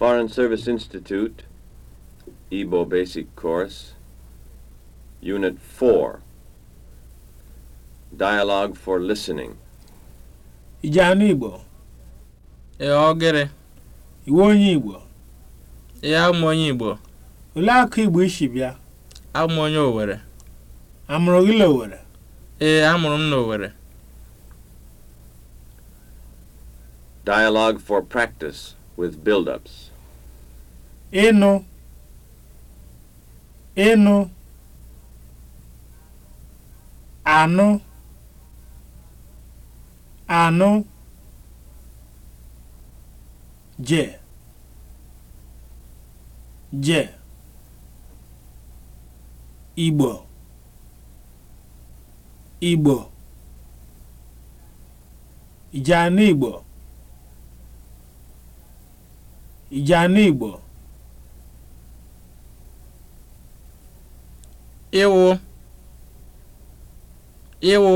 Foreign Service Institute, Igbo Basic Course, Unit 4, Dialogue for Listening. Ijanu Igbo. E ogere. Iwe onye Igbo. Ee amụ onye Igbo. Olee akụ Igbo isi bịa? Amụ onye Owere. Amụrụ gị n'Owere? Ee amụrụ m n'Owere. Dialogue for practice with build-ups. ịnụ ịnụ anụ anụ je je igbo igbo ijana igbo ijana igbo ịwụ ịwụ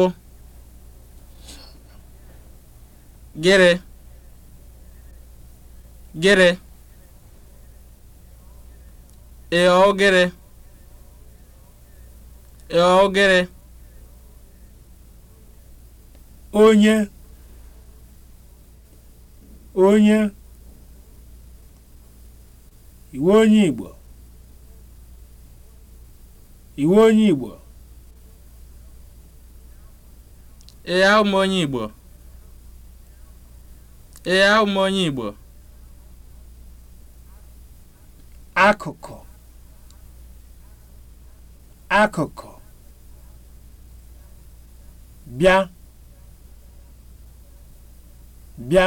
gịrị gịrị ịghọ gịrị ịghọ gịrị onye onye iwu onye Igbo iwe onye Igbo onye Igbo Igbo akụkụ akụkụ bịa bịa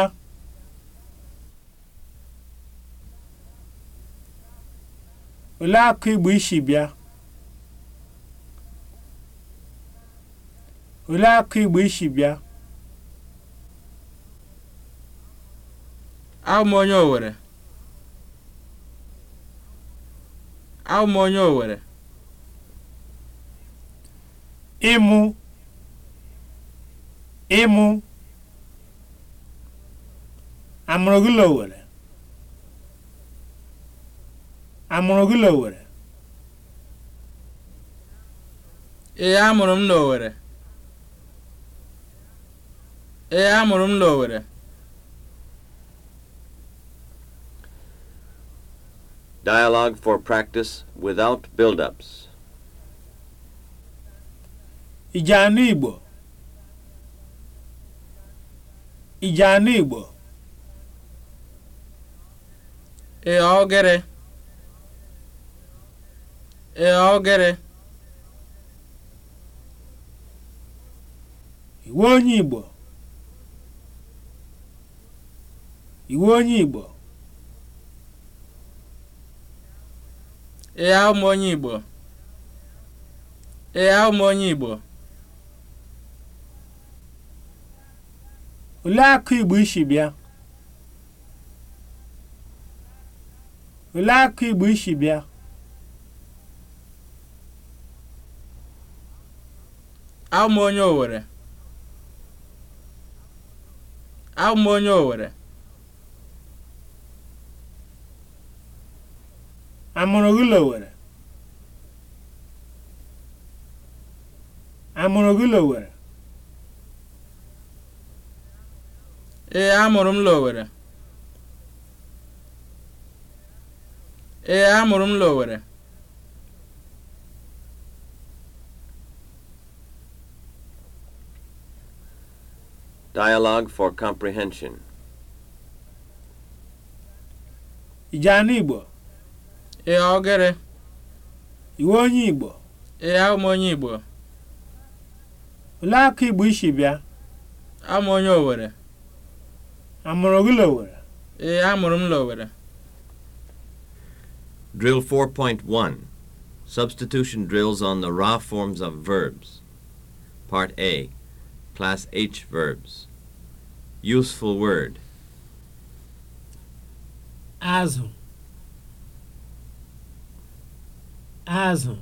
olee akụ Igbo isi bịa olee akụ igbo isi e bịa abụ onye Owere abụ onye Owere ịmụ ịmụ amụrụ gị Owere amụrụ gị Owere ee amụrụ m n'Owere ee amụrụ m n'Owere. Dialogue for practice without build-ups. Ijeanụ Igbo. Ijeanụ Igbo. Ee ogere. Ee ogere. Iwe onye Igbo. iwu onye igbo ịgha ụmụ onye igbo ịgha ụmụ onye igbo olee akụ igbo isi bịa olee akụ igbo isi bịa aụmụ onye Owere. aụmụ onye Owere. amụrụ gị Lowere amụrụ gị Lowere ee amụrụ m Lowere ee amụrụ m Lowere Dialogue for comprehension. Ị Igbo Ee, ogere. Iwe onye Igbo? Ee, abụ m onye Igbo. Olee akụ Igbo isi bịa? Amụ onye Owere. Amụrụ gị Lowere? Ee, amụrụ m Lowere. Drill 4.1 Substitution drills on the raw forms of verbs. Part A Class H verbs. Useful word. Azụ. azụ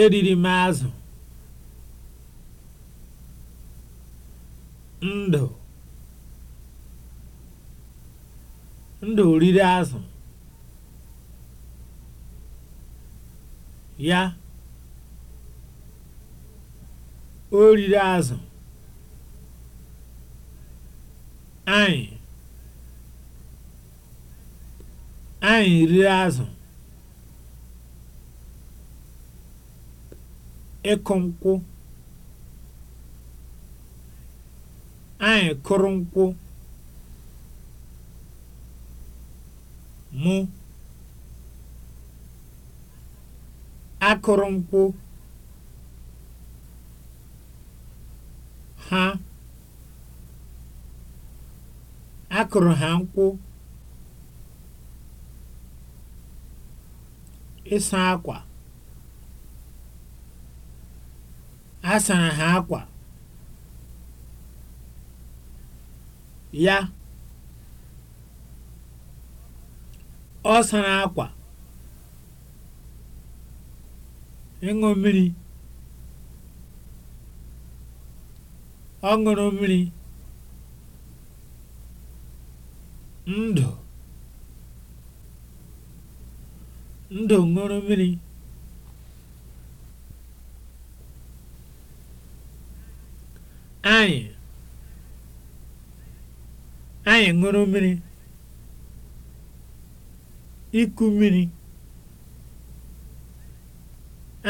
eriri m azụ ndụ ndụ riri azụ ya o riri azụ anyị Anyị rie azụ. Ịkụ nkwụ. Anyị kụrụ nkwụ. Mụ. Akụrụ nkwụ. Ha. Akụrụ ha nkwụ. ịsa akwa A sara ha akwa Ya. Ọ sara akwa Ịṅụ mmiri. Ọ ṅụrụ mmiri. Ndụ. Ndụ ṅụrụ mmiri. Anyị Anyị ṅụrụ mmiri. Iku mmiri.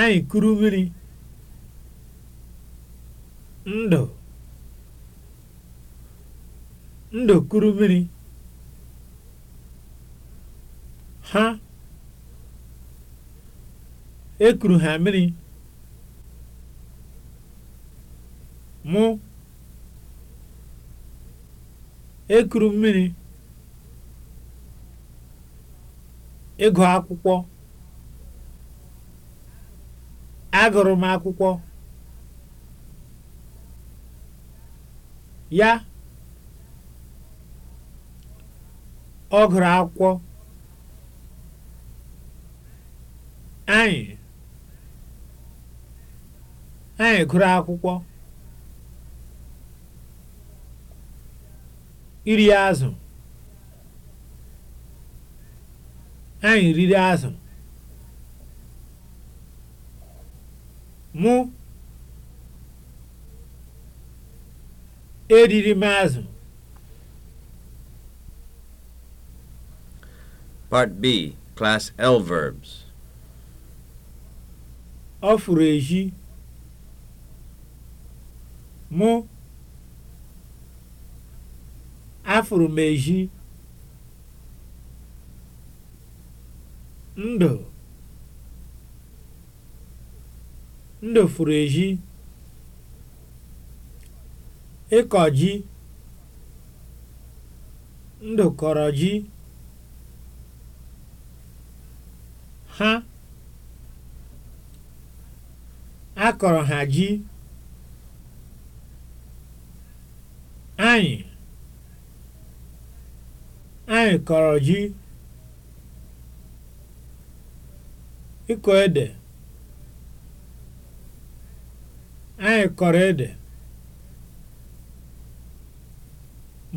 Anyị kuru mmiri. Ndụ Ndụ kuru mmiri. Ha E kuru ha mmiri. Mụ. E kuru mmiri. Ịgụ akwụkwọ. Agụrụ m akwụkwọ. Ya. Ọ gụrụ akwụkwọ. Anyị. na-agụrụ akwụkwọ iri azụ anyị riri azụ mụ eriri m azụ part b class l verbs ọ fụrụ ehi. mụ afụrụ m ezi ndụ ndụ fụrụ ịkọ ji ndụ kọrọ ji ha akọrọ ha ji Anyị Anyị kọrọ ji, ịkọ ede, anyị kọrọ ede.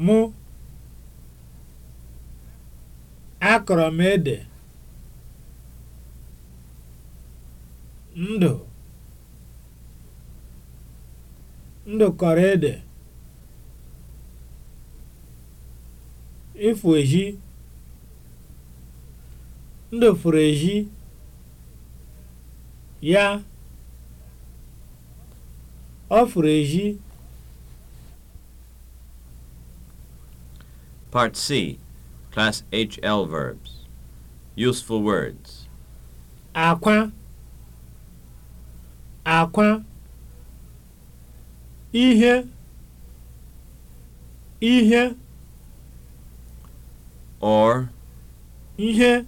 Mụ, akọrọ m ede. Ndụ, Ndụ kọrọ ede. ịfụ ezi ndị furu ezi ya ọ furu ezi Part C Class HL verbs Useful words akwa akwa ihe ihe or ihe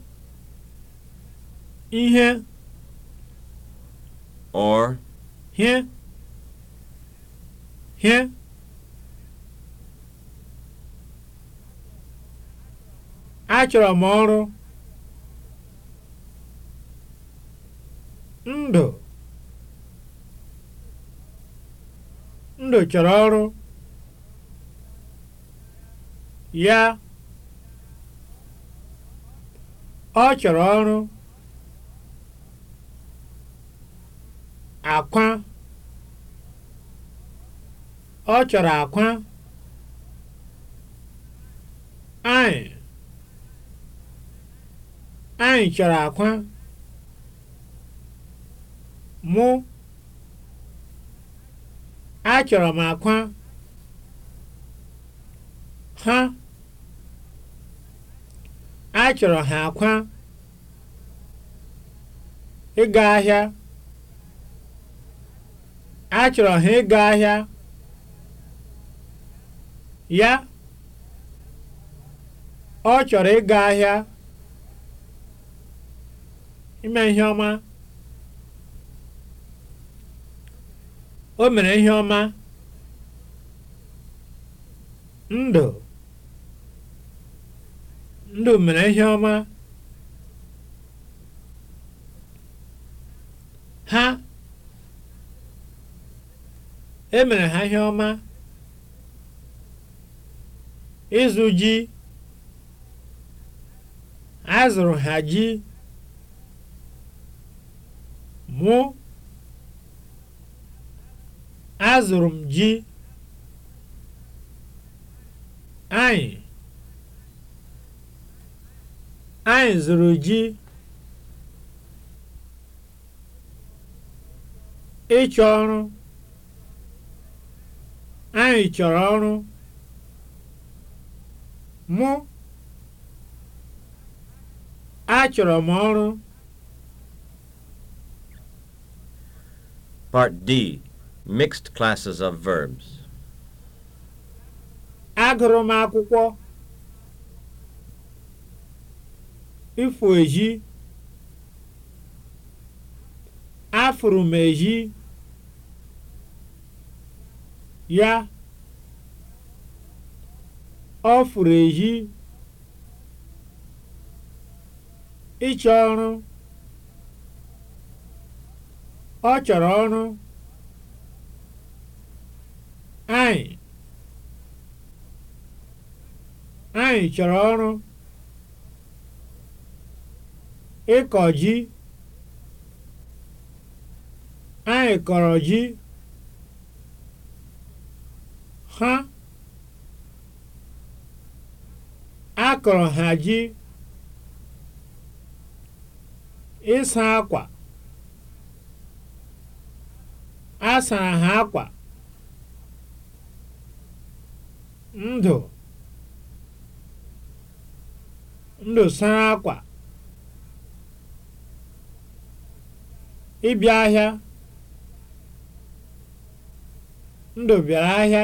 ihe or He here achọrọ m ọrụ ndụ ndụ chọrọ ọrụ ya ọ chọrọ ọrụ akwa ọ chọrọ akwa anyị anyị chọrọ akwa mụ achọrọ m akwa ha a chọrọ ha akwa ịga ahịa a chọrọ ha ịga ahịa ya ọ chọrọ ịga ahịa ime ihe ọma o mere ihe ọma ndụ ndụ mere ihe ọma ha emere ha ihe ọma ịzụ ji azụrụ ha ji mụ azụrụ m ji anyị Anyị zụrụ ji ịchọ ọrụ anyị chọrọ ọrụ mụ achọrọ m ọrụ Part D Mixed Classes of Verbs Agụrụ m akwụkwọ ịfụ eji afụrụ m eji ya ọ fụrụ eji ịchọ ọrụ ọ chọrọ ọrụ anyị anyị chọrọ ọrụ ịkọ ji anyị kọrọ ji ha akọrọ ha ji ịsa akwa asara ha akwa ndụ ndụ sara akwa ịbịa ahịa ndụ bịara ahịa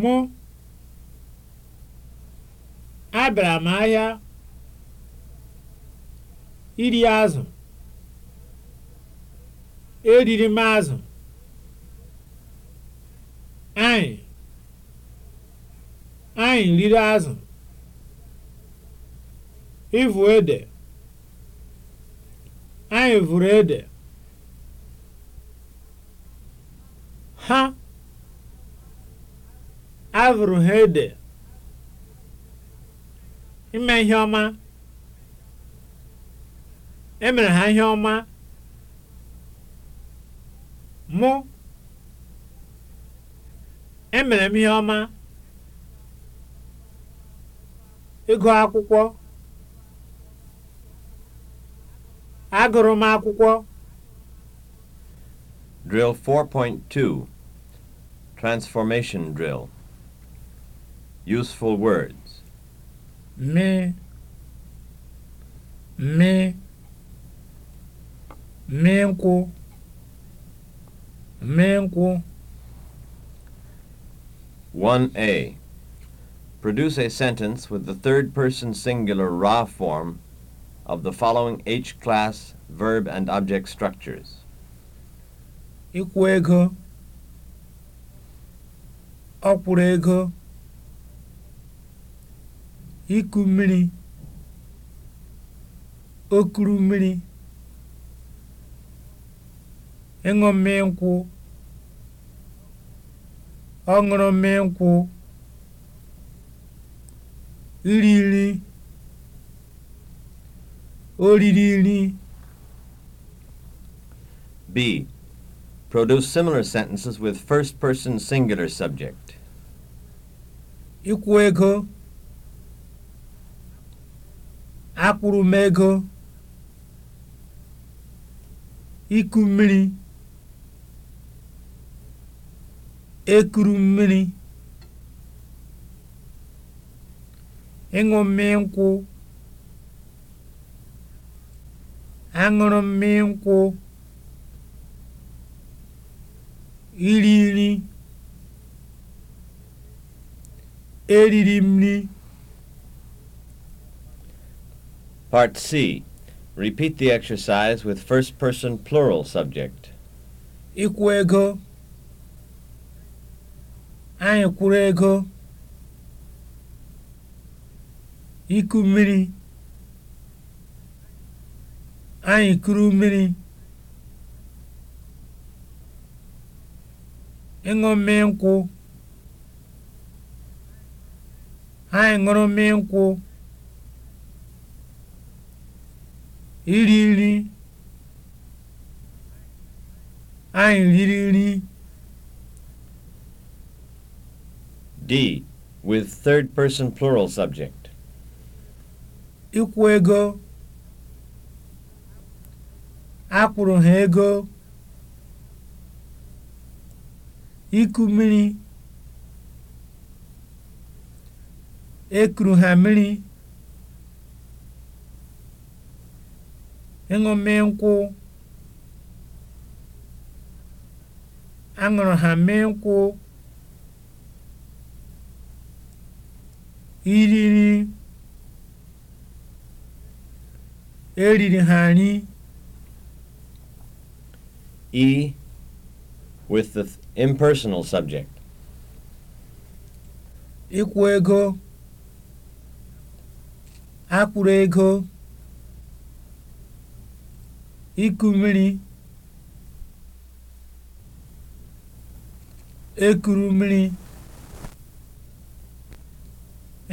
mụ abịara m ahịa iri azụ eriri m azụ anyị anyị riri azụ ivụ ede ha vụrụ ede, ha avụrụ ha ede, ime ihe ọma, emere ha ihe ọma, mụ emere m ihe ọma, ịgụ akwụkwọ. Agụrụ m akwụkwọ. Drill 4.2 Transformation Drill Useful words Me Me Me nkwụ Me nkwụ 1A Produce a sentence with the third person singular ra form of the following H-class verb and object structures. Ịkwụ ego, ọ ego, iku mmiri, Okuru mmiri, ịṅụ mmiri nkwụ, ọ ṅụrụ mmiri nkwụ, iri nri. oriri riri nri. B. Produce similar sentences with first person singular subject. Ịkwụ ego. Akwụrụ m ego. Iku mmiri. Ekuru mmiri. Ịṅụ mmiri nkwụ. aṅụrụ mmiri nkwụ iri nri eriri m nri Part C. Repeat the exercise with first person plural subject. Ịkwụ ego. Anyị kwụrụ ego. Iku mmiri. anyị kuru mmiri ịṅụ mmiri nkwụ anyị ṅụrụ mmiri nkwụ iri nri anyị riri nri D with third person plural subject. Ikwu ego akwụrụ ha ego iku mmiri ekuru ha mmiri ịṅụme nkwụ aṅụrụ ha mee nkwụ iriri e eriri ha nri E with the impersonal subject. Ịkwụ ego. Akwụrụ ego. Iku mmiri. Ekuru mmiri.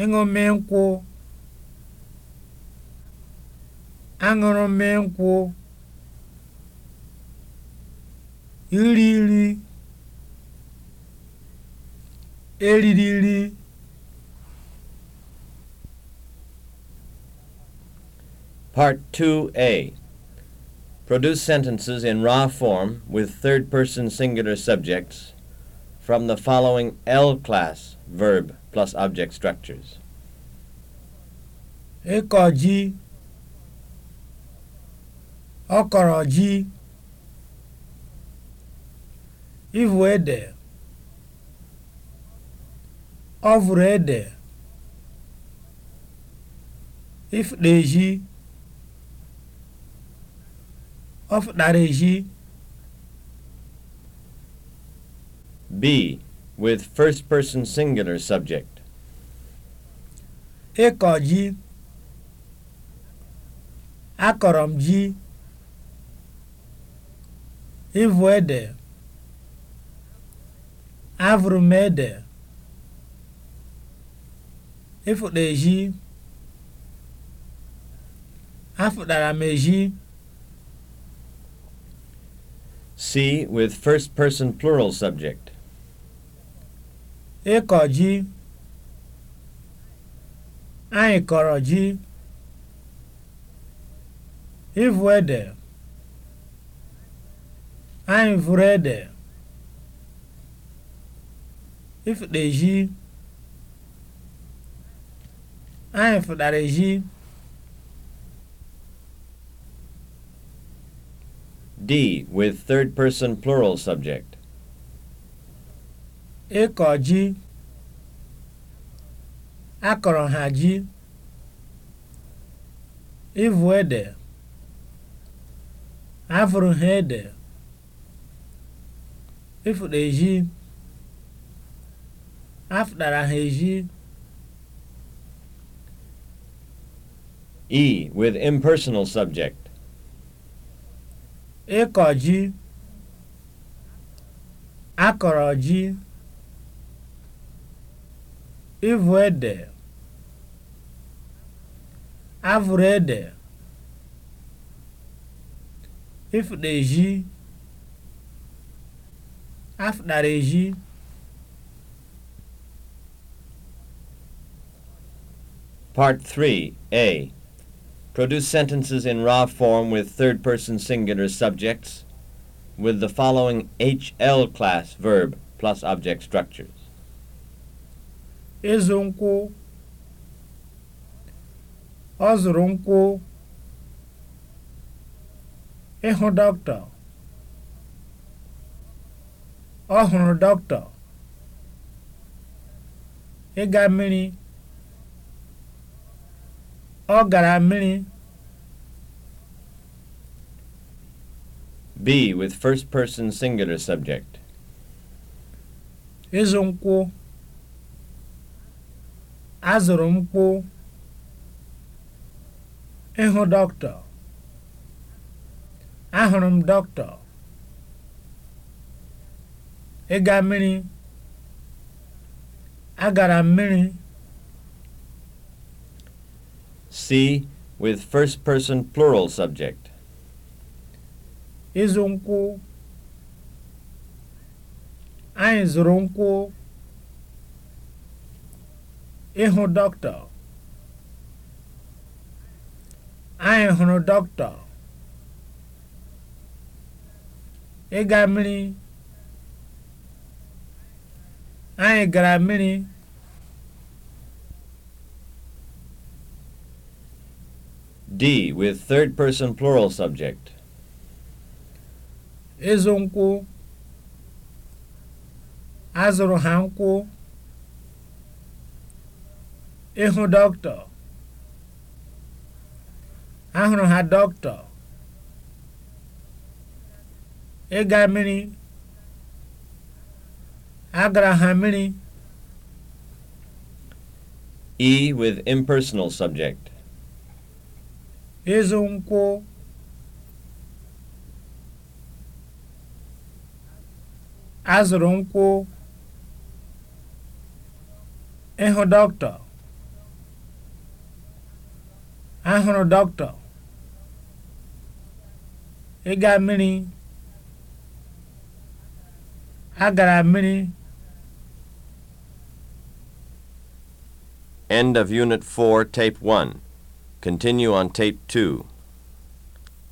Ịṅụmị nkwụ. nkwụ. iriri eririri Part 2A Produce sentences in raw form with third person singular subjects from the following L class verb plus object structures. Ekoji Okoroji Ivu ede ọ ede ịfụta ezi ọ ezi b with first person singular subject ịkọ ji akọrọ m ji ịvụ ede Avụrụ m ede, ịfụrụ ezi, afụtara m ezi. See with first person plural subject. Ịkọ ji, anyị kọrọ ji. Ịvụ ede, anyị vụrụ ede. ịfụkpa ezhi anyị fụkpara ezhi D with third person plural subject. Ịkọ ji akọrọ ha ji ịvụ ede afụrụ ha ede ịfụkpa ezhi afundara ha eji. E with impersonal subject. Ịkọ akoroji, Akọrọ ji. Ịvụ ede. Avụrụ ede. Ịfụda eji. eji. Part 3 A. Produce sentences in raw form with third person singular subjects with the following HL class verb plus object structures. Ịzụ nkwụ Ọ zụrụ nkwụ Ọ gara mmiri. B with first person singular subject. Ịzụ nkwụ. Azụrụ nkwụ. Ịhụ dọkịta. Ahụrụ m dọkịta. Ịga mmiri. Agara mmiri. C. With first person plural subject. Izu nkwụ. Anyị zuru nkwụ. ihu dọkịta. Anyị hụrụ dọkịta. Ịga mmiri. Anyị gara mmiri. D. With third person plural subject. Ịzụ nkwu, Azụrụ ha nkwu, ihu dokto, Ahụrụ ha dokto, iga mmiri. Agara ha mmiri. E. With impersonal subject. ịzụ nkwụ azụrụ nkwụ ịhụ dọkịta ahụrụ dọkịta ịga mmiri a gara mmiri End of Unit 4, Tape 1. Continue on tape 2.